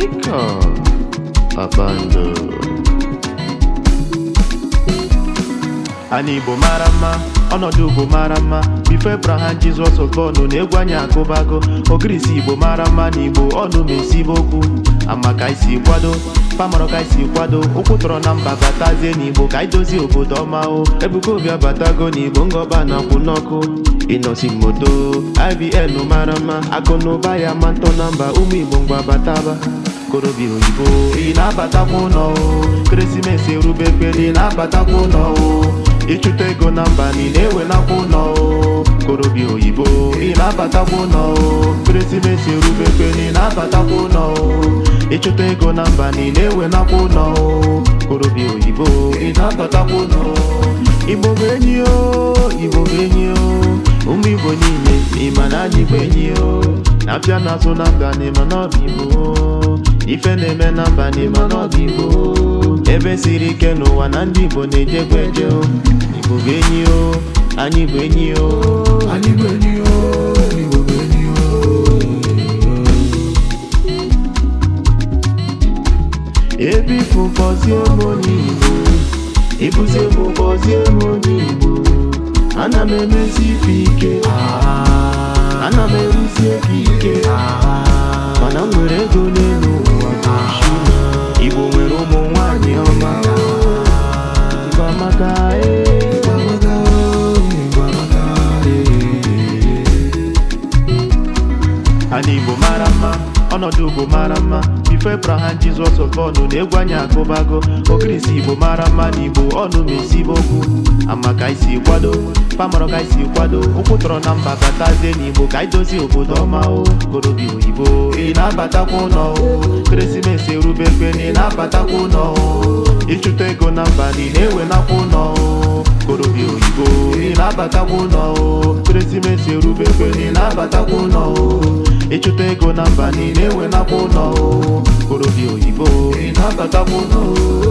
américain avant de... anyị igbo mara mma ọnọdụ ugbo mara mma bifo ebraham jizọs okonu na-egwu anyị akụbago ogirisi igbo mara mma na igbo ọnụ ma okwu ama ka isi kwado pamaro ka isi kwado ụkwụ tọrọ na mba batazie n'igbo ka idozi obodo ọma o ebuka obi abatago na igbo ngọba na akwụ n'ọkụ ịnọsi moto ibn mara mma akụ na ya ma ntọ na mba ụmụ igbo mgbe abataba okorobịa oyibo ị na-abatakwa ụlọ ekeresimesi erube ekpere ị na ịchụta ego na ni na ị na o oyibo ị na-abatakwa Keresimesi ekeresimesi erube ekpere ị na ịchụta ego na mba na ị na o ụlọ oyibo ị na-abatakwa ụlọ igbo o igbo o ụmụ igbo niile ịma na anyị o na n'azụ na mba na ife na-eme n'abalị mana ọ dị igbo ebe siri ike n'ụwa na ndị igbo na-ejekwa eje igbo bụ enyi o anyị bụ enyi o anyị bụ enyi o ebe ifu m onye igbo ịbụzie fụkpọzie m onye igbo ana m emezi ife ike ah. ana m eruzi ebe ike ah. mana m nwere ego n'elu Igbo nwere ụmụ nwanyị ọma Igbo amaka Igbo Igbo Ana Igbo mara mma ọnọdụ Igbo mara mma ifebraha jizọs ọkọnụ na egwu anyị akụbago okirisi igbo mara mma na igbo ọnụ ma esibe okwu ama ka isi kwado pamarọ ka isi kwado ụkwụ tọrọ na mba batazie na igbo ka anyị dozie obodo ọma o korobi oyibo ị na-abatakwa ụlọ o keresimesi erube ekwe na ị na-abatakwa ụlọ o ịchụta ego na mba niile enwe na-ewenakwa ụlọ o korobi oyibo ị na-abatakwa ụlọ o keresimesi erube ekwe na ị na-abatakwa ụlọ ego na mba niile enwenakwa ụlọ orobi oyibo na-abatakwa ụlọ